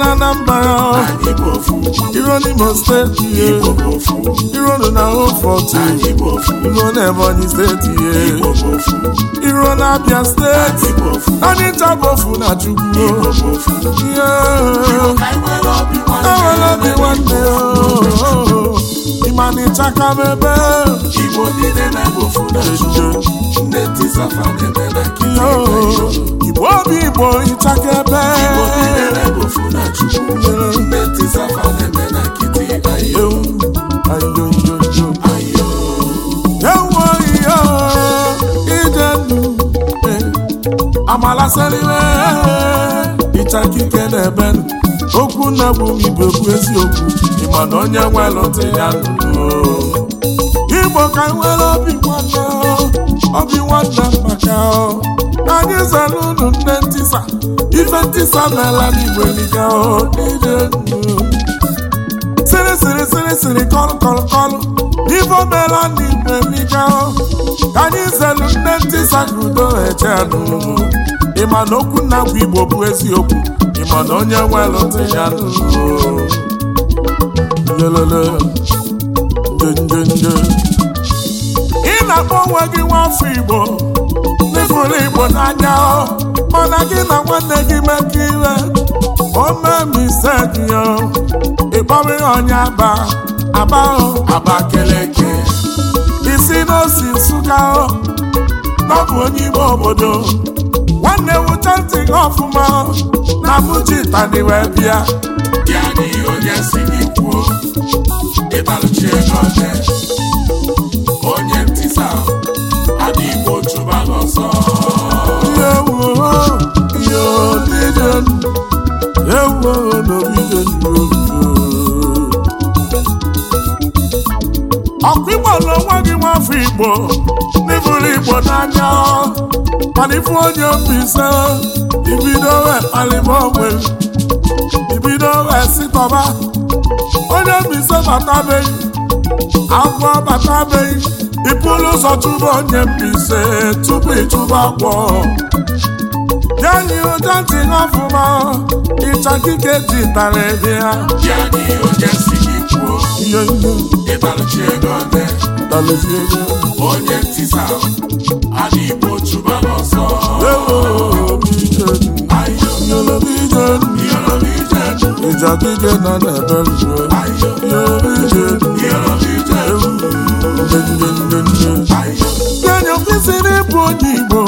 na na mba Iro n'Imo steeti steji ye Iro ni na ho forty Iro ni ebo ni steji ye Iro na abia steji Ani ta bofu na chukwu Iro ka nwere lobi wande Iwe lobi oh. wande Imani chaka bebe Iro ni nene na chukwu aka kike na-ebenụ okwu na bụ igbo bụ eziokwu ịma na onye nwelụta ya nụrụ igbo ka nwere obi nwanne obi nwanne maka anyị zara unu nne ntịsa ife ntisa n'ala n'igbo eliga siri siri siri siri kọlụ kọlụ kọlụ ife omela ka anyị nne ka udo ịma na okwu nna bụ igbo bụ eziokwu ịma na onye nwe ntị ya ị na-akpọ onwe gị nwafọ igbo n'ịfụrụ igbo n'anya mana gị na nwanne gị mekọ ire omemse gị ịkpọrọ onye aba aba aba keleke isi n'osi nsụka ọ bụ onye ime obodo m ntị gị ọfụma na mụji bịa ya na onye si gị kwuo ịbalụchi ego onye ntịsa adị igbo chụba n'ọsọ ọkụ igbo na onwe gị nwafọ igbo igbo n'anya mana ifu onye mbise ibido wee kpalịba onwe ibido wee sitọba onye mbise batabeghị agwọ batabeghị ịpụrụ ụzọ chụba onye mbise tupu ịchụba agwọ ya yi ụja ntị ọfụma ịcha kike ji tara ebe ya dị ihe ego dị. mezie onye ntisa adị igbo chụba n'ọsọ ịjadije na na-ebe rue enyo kwesịrị ịbụ onye igbo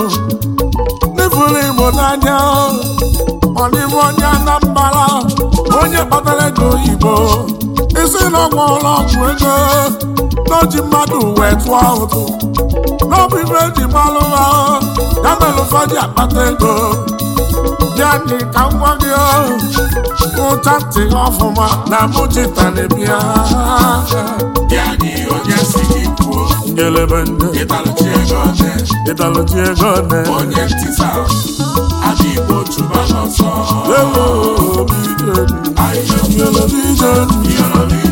n'efuru igbo n'anya ọdịbụ onye anambara onye kpatara ego oyibo isi na ọgwụ ụlọ ọgwụ ego n'oji mmadụ wee tụọ ụtụ n'ọbụ ibe eji gbalụ ha ya mere ụfọdụ akpata ego ya ka nwa gị ụcha ntị ọfụma na mụchita na-ebia kelebe onye ntịsa adị igbo chụba n'ọsọ lelo obi ije ije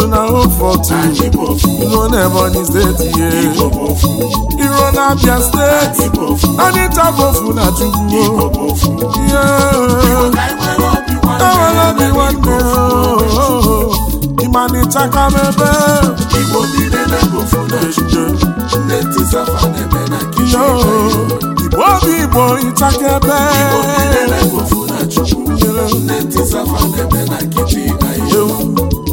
you na o for two you run Ebonyi State yeah you run Abia State Anita Bofu na Chukwu o yeah o Ịmanịcha ebe Igbo n'ebe na-ejide nne Tisafa na-eme na kichin Igbo obi Igbo ịchakebe Igbo bi n'ebe Bofu na Chukwu na na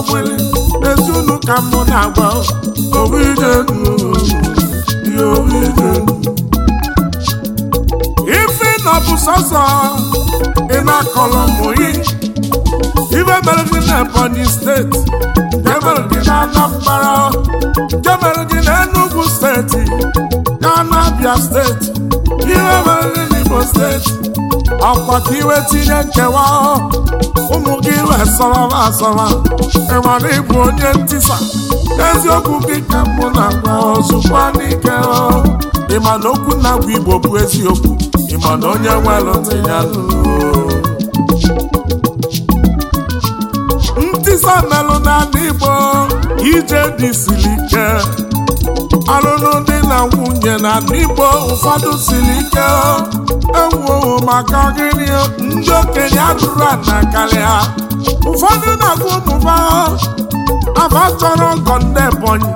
ọgbụlị ezi unu ka m na-agba ife na ọ bụ sọsọ ị na-akọlọ mụyi ibe mere gị na Ebonyi steeti nke mere gị na Anambra nke mere gị na Enugwu steeti na Abia steeti ibe mere gị na Igbo steeti akwa ka iwe tinye nkewa ụmụ gị wee sọrọba ịmara ịbụ onye ntisa eziokwu gị ka mụ na-agwa ozugbo n'ike ịma okwu na-agwa igbo bụ eziokwu ịma na onye nwelụdị ya ntisa melụ n'ala igbo ije dị siri ike ọlụlụ dị na nwunye na n'igbo ụfọdụ siri ike ewuowo maka gịnị ndị okenye atụrụ ana karịa ụfọdụ na-agụ ụmụba afa chọrọ ọgọ ndị Ebonyi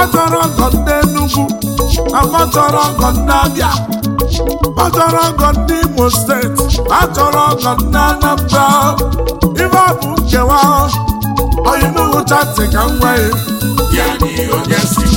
ọ chọrọ ọgọ ndị Enugu afa chọrọ ọgọ ndị Abịa ọ chọrọ ọgọ ndị Imo steeti ọ chọrọ ọgọ ndị Anambra ife ọ bụ nkewa onye n'ugwu chati ka m nwee ya n'ihi onye si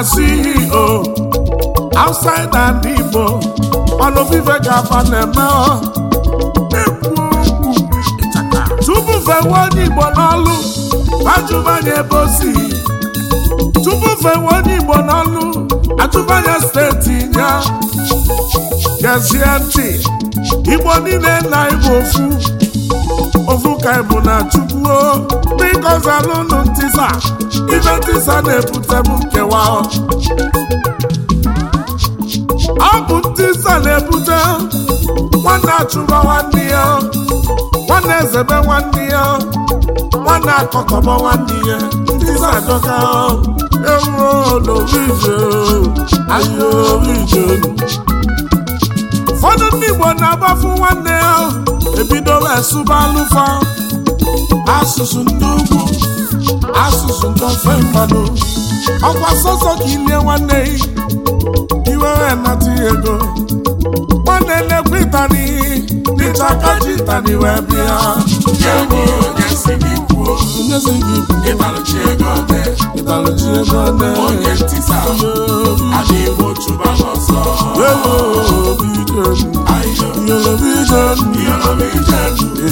na CEO outside and Igbo ọnụ vive gava na-eme tupu fewe onye Igbo n'ọlụ ajụbanye ebe o si tupu fewe onye Igbo n'ọlụ ajụbanye steeti ya gezie ntị Igbo niile na Igbo ofu ovuka bụ na chukwuo biko zalụnụ ntisa ibe ntisa na-ebutebu ebute nkewa ọ bụ ntisa na-ebute nwanne achụba nwanne ya nwanne ezebe nwanne ya nwanne akọkọba nwanne ya ntisa adọka ewuo ije, ahịa ije. ụfọdụ ndị Igbo na-agbafu nwanne ya ebidola esụba alụfa asụsụ ndị ugwu asụsụ ndị ofe mmanụ ọkwa sọsọ ka ilie nwanne iwere nata ego nwanne na-ekwe ịtani n'ịchaka ji ịtani wee bịa onyezi gị ịtalụchi ego ọdị ịtalụchi ego ọdị onye ntị sa adịghị otu ba n'ọsọ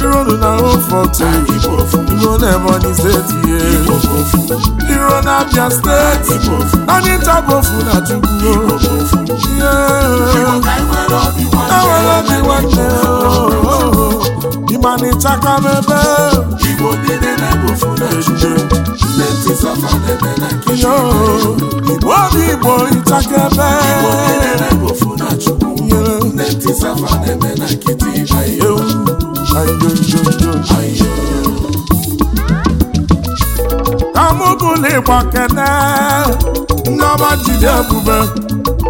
Ironu na Oforto, Iro na Ebonyi ye Iro na Abia Steeti, anyị ntabofu na Chukwu. Enwere obi nwanne ịmanịchaka m ebe Igbo niile na na ejije ndị ntị na na Igbo obi Igbo Igbo n'igbo na-ebofu na safa na-eme na kamụgụligba kene nneọma jide ebube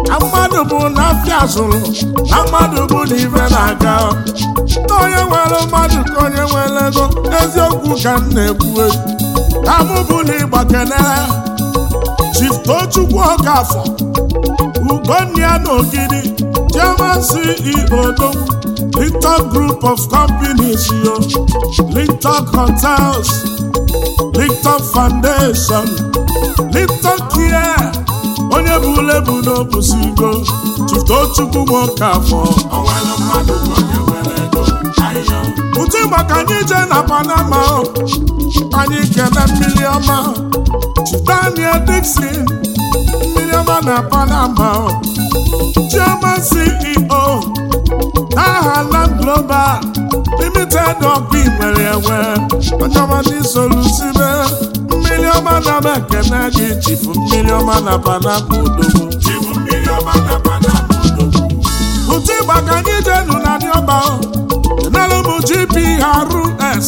na mmadụ bụ na afịa zụrụ na mmadụ bụ na ibe na-aga na onye nwere mmadụ ka onye nwere ego eziokwu ka m na-ekwue kamụbụligba kene chiftochukwu ọkafọ ugonna ya na ogidi chioma CEO Lintok Group of Companies, yo. Lintok Hotels, Lintok Foundation, Lintok Care, onye bụ ule bụ onye nwere nwoke afọ. Ụtụ maka anyị jee na Panama, anyị kene mmiri ọma, Daniel Dixon, mmiri ọma na Panama, Chairman CEO. aha Land Global limited ọkụ igwere enwe onyeọmadị solusibe mmiri ọma na m ekene gị chifu mmiri ọma na panapa odogwu ụtụ ịgba ka anyị jenu na ndị ọba enelu m GPRS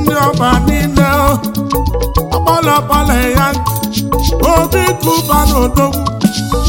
ndị ọba niile ọkpọlọkpọlọ ya obi kuba na odogwu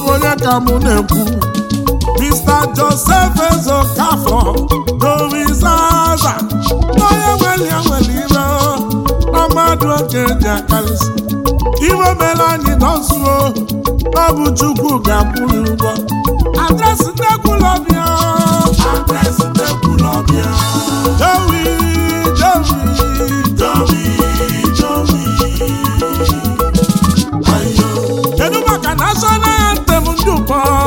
ọgo ya ka mụ na-ekwu Mr. Joseph Ezokafọ dorizaza n'onye nwere ya nwere ire na mmadụ oke ji akarịsị iwe mere anyị nọzuo ọ bụ Chukwu ga-akwụrụ ụgwọ adresị nnekwulọbịa adresị nnekwulọbịa Jowi Jowi Jowi ayo! kedu maka national dùn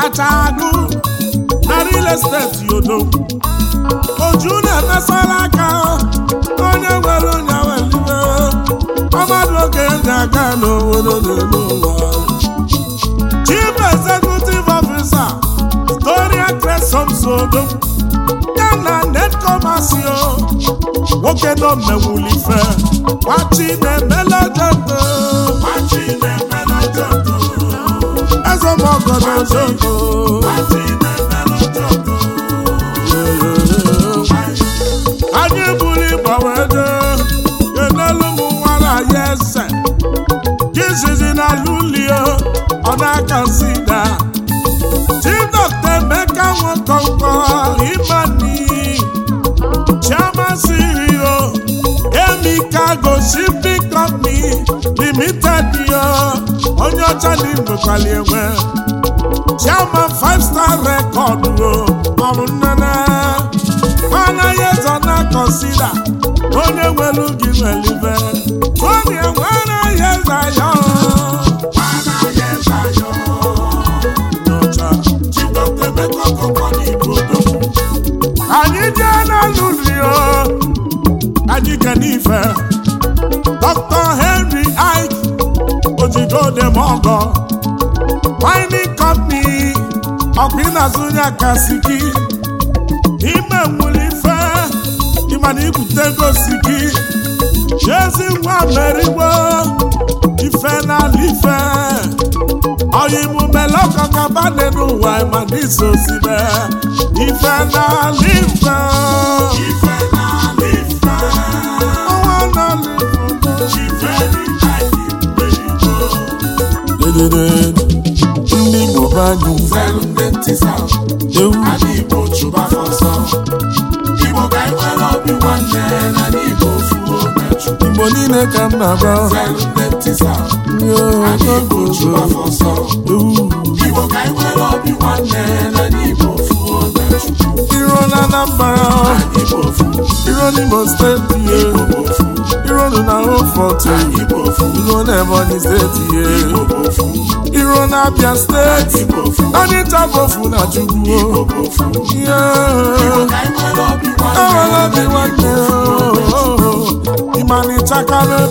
kacha agụ na real estate yodo oju na-emesara aka onye nwere onye welibe ọmadụ oge na aka n'obodo n'elu ụwa chief executive officer Gloria Cresomsodo ya na netkomasio nwoke nọ mmewulife gwachi na-emele dede ogodogo anyị buru ịgbanwe ego enelu m nwara ya ese jizizi na lulio ọ na-aka sida tidọkta emeka nwekọnkọ imani chiamasirio emika gosi bikọni limited yo onye ọcha na igbekwali enwe chairman five star o maọbụ nnene anaghị ezo na kọnsida onye nwere gị nwelibe onye enwe anaghị eze anyị jee n'alụ rio anyị kenife dr ọgọ mining company ọkwa ị na-azụ onye aka gị ime nwere ife ịmana ibute ego si gị chezi nwa merigbo ife n'ala ife ọya imume lọkọkaba dị n'ụwa ịmana iso sibe ife n'ala ife asịsa Igbo chụba afọ Igbo ka anyị e nwere obi nwanne na n'Igbo ofuo Igbo niile ka m na-agba chụba afọ Igbo ka anyị e nwere obi nwanne na n'Igbo ofuo Iro na Anambra Iro steeti iru unu na Rufọtụ ya na Ebonyi steeti ọdịcha iru na Abia steeti Onitsha bofu na Chukwu ewela bi nwanne ịma na ịchakalụ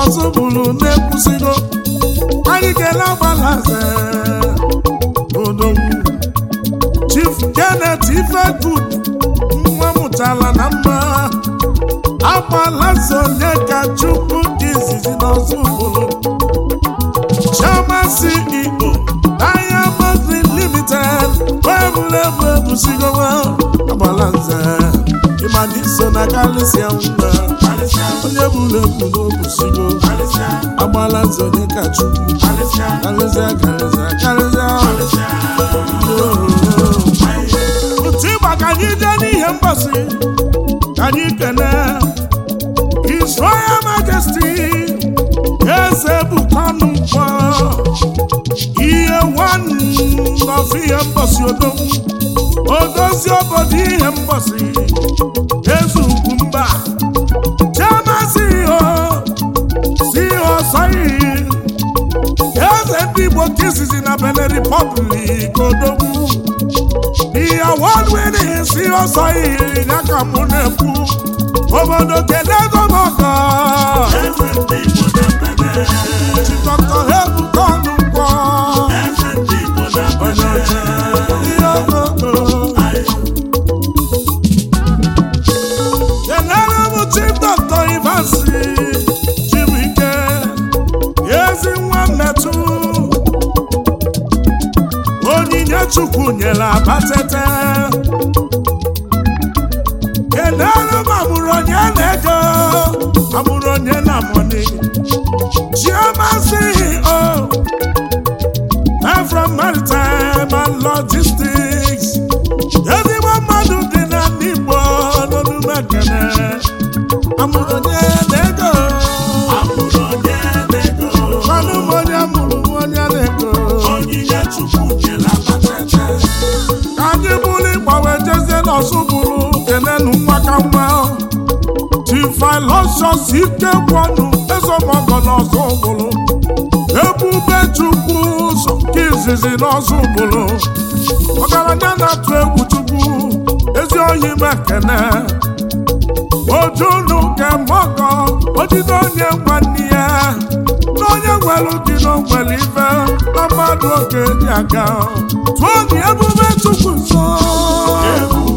ọzọ bụrụ na-ekwusigo anyị ga-ele odogwu Chief Janet Ifegud nwa mụtara na mma agbalaze onye ka Chukwu dị izizi n'ọzọ bụrụ Chioma CEO Diamond Limited weebulebụ ebusigowa agbalaze ịma na iso na kalisia mma onye bụrụ ebu n'obusigo agbala nze onye ka chukwu karịzịa karịzịa karịzịa otu ịgba ka anyị jee n'ihe mgbasị ka anyị kene His Royal Majesty eze bụkwanụ mkpọ ihe nwanọzi ihe mgbasị odogwu odozi obodo ihe mgbasị eze ugwu mba ọsọ iyi eze ndị Igbo nke izizi na Benin Republic odogwu ihe ya ka mụ na-ekwu obodo kedu ego m ọkọ ọsụ bụrụ kenenu nwakamma tifilosios ike kwọnụ ezemọgọna ọsụ bụrụ ebube chukwu ụzọ izizi n'ọsụ bụrụ ọgaranya na-atụ egwu chukwu ezi oyi mekene ojunu ke mọgọ ojide onye nwanne ya na onye nwere dị n'ogwere ife na mmadụ oge dị aga tụọ dị ebube chukwu nsọ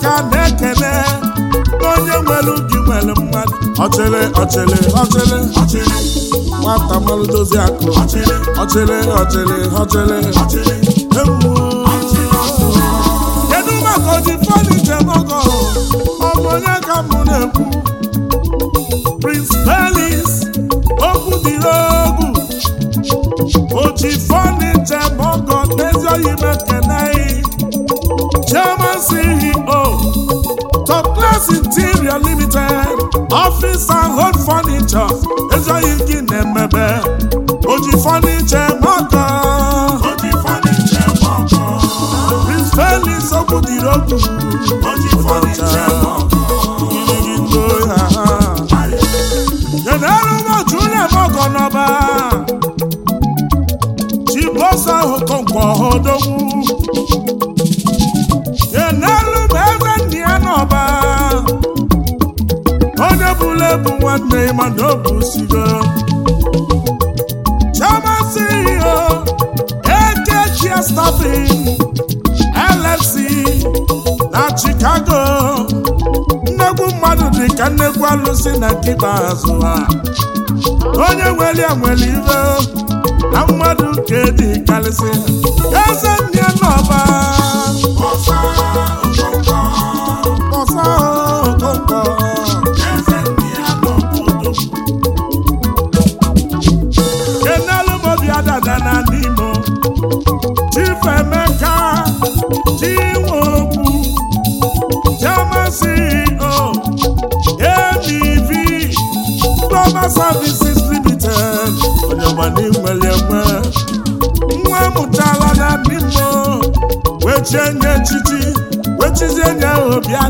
ka na-ekele onye nwere ubi nwere mmadụ ọchịrị ọchịrị ọchịrị ọchịrị nwata mmanụ dozie akụ ọchịrị ọchịrị ọchịrị ọchịrị ọchịrị kedu maka oji fọdụ njem ọgọ ọbụ onye ka mụ na-ekwu Prince Pelis okwu dịrị ogwu oji fọdụ njem ọgọ n'ezi oyi fọniche mọkọ Prince Felix okwudiri okwu ụbọchị taa na nkịta azụ ha onye nwere nwere ibe na mmadụ nke dị karịsị eze ndị n'ọba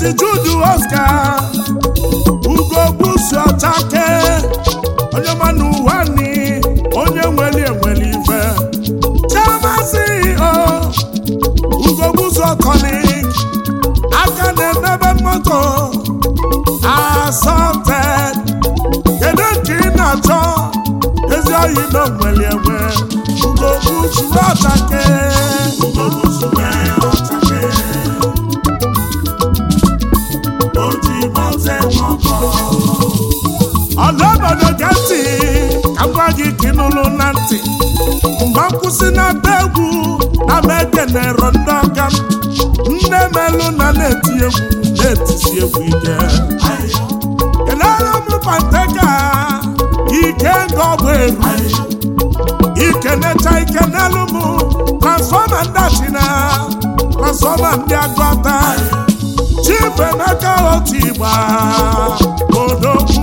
Maazị Jude Oscar ugogbuzuchake onye mana ụwa ni onye nweli enweli ife chemazi o ugogbuzuokoni aka na-emebe moto asọte kedu nke ị na-achọ ezi oyi na nweli enwe ugogbuzuchake si n'ata egwu na na ekenero ndị ọka nne melụ na na-eti egwu na-etisi egwu ike kelere m pateka ike nga ọbụ eru ikenecha ike n'elu mụ, transfọma ndị na transfọma ndị agụata chifu emeka otu igba odogwu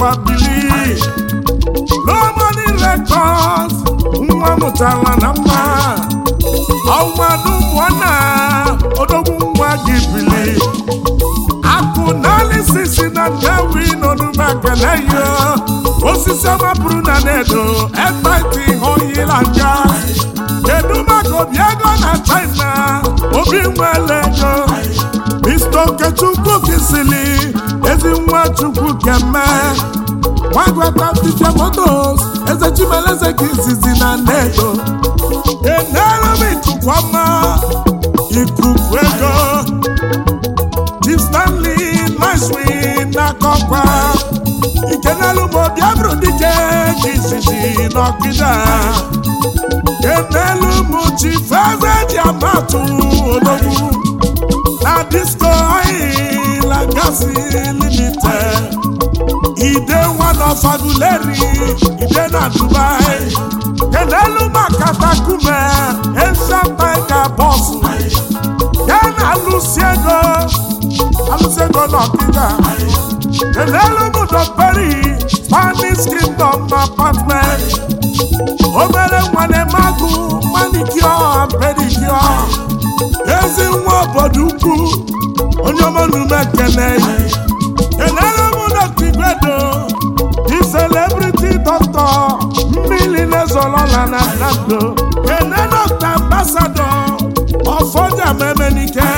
akwa bili Lomani Records nwa mụtala na mma ọnwadubụna odogwu nwa gị bili akụ naalisisi na ndewi n'onumaganayo osisi ọmapụrụ na nedo ebaiti hoyila nja kedu maka obi ego na China obi nwele ego Mr. Okechukwu kisili ezi nwa Chukwu keme nwagwata Tizia Motos eze Chimeleze izizi na nnedo enere m itukwama ikuku ego Chief Stanley Nashwin n'akọkwa ikenelu m obi abụrụ dike ka izizi n'ọkịda enelu m Chief Eze amatụ disco oil and gas limited ide one of aguleri ide na dubai kenelu Makata efemeka bọsụ ya na alụsi ego alụsi ego n'ọkịda kenelu mụdọperi spanish kingdom apartment obere nwane magụ manicure pedicure ezi nwa obodo ukwu onye ọma n'ume ekene enere m dọkta igwedo di celebrity doctor mmiri na na nando ene dọkta ambasado ọfọdụ amemenike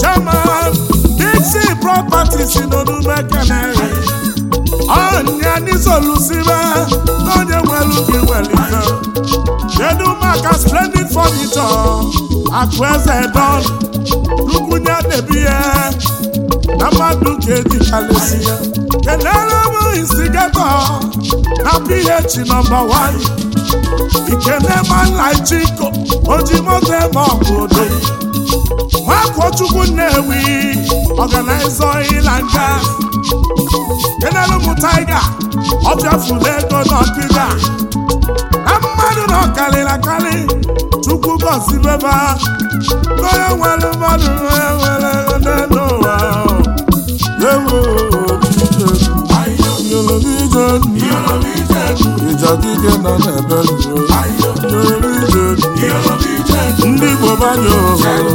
chairman dixi properties n'onume ekene ọnya n'izolusibe n'onye nwelu gị welite kedu maka splendid akụ eze don lukwunye na-ebi ya na mmadụ ka edikalesi ya bụ instigatọ na ph nọmba 1 ikenemanlaijiko ojimoto eme ọbụdo nwakochukwu nnewi ọganaiza ịla nga kenelu m taiga ọ na ego n'ọkịda na mmadụ na ọkarịrị akarị chukwu gọzibeba onye nwere mmadụ onye nwere n'elu ụwa ewu ijadike nọ n'ebe ndị Igbo banye ohere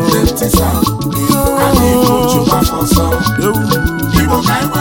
ewu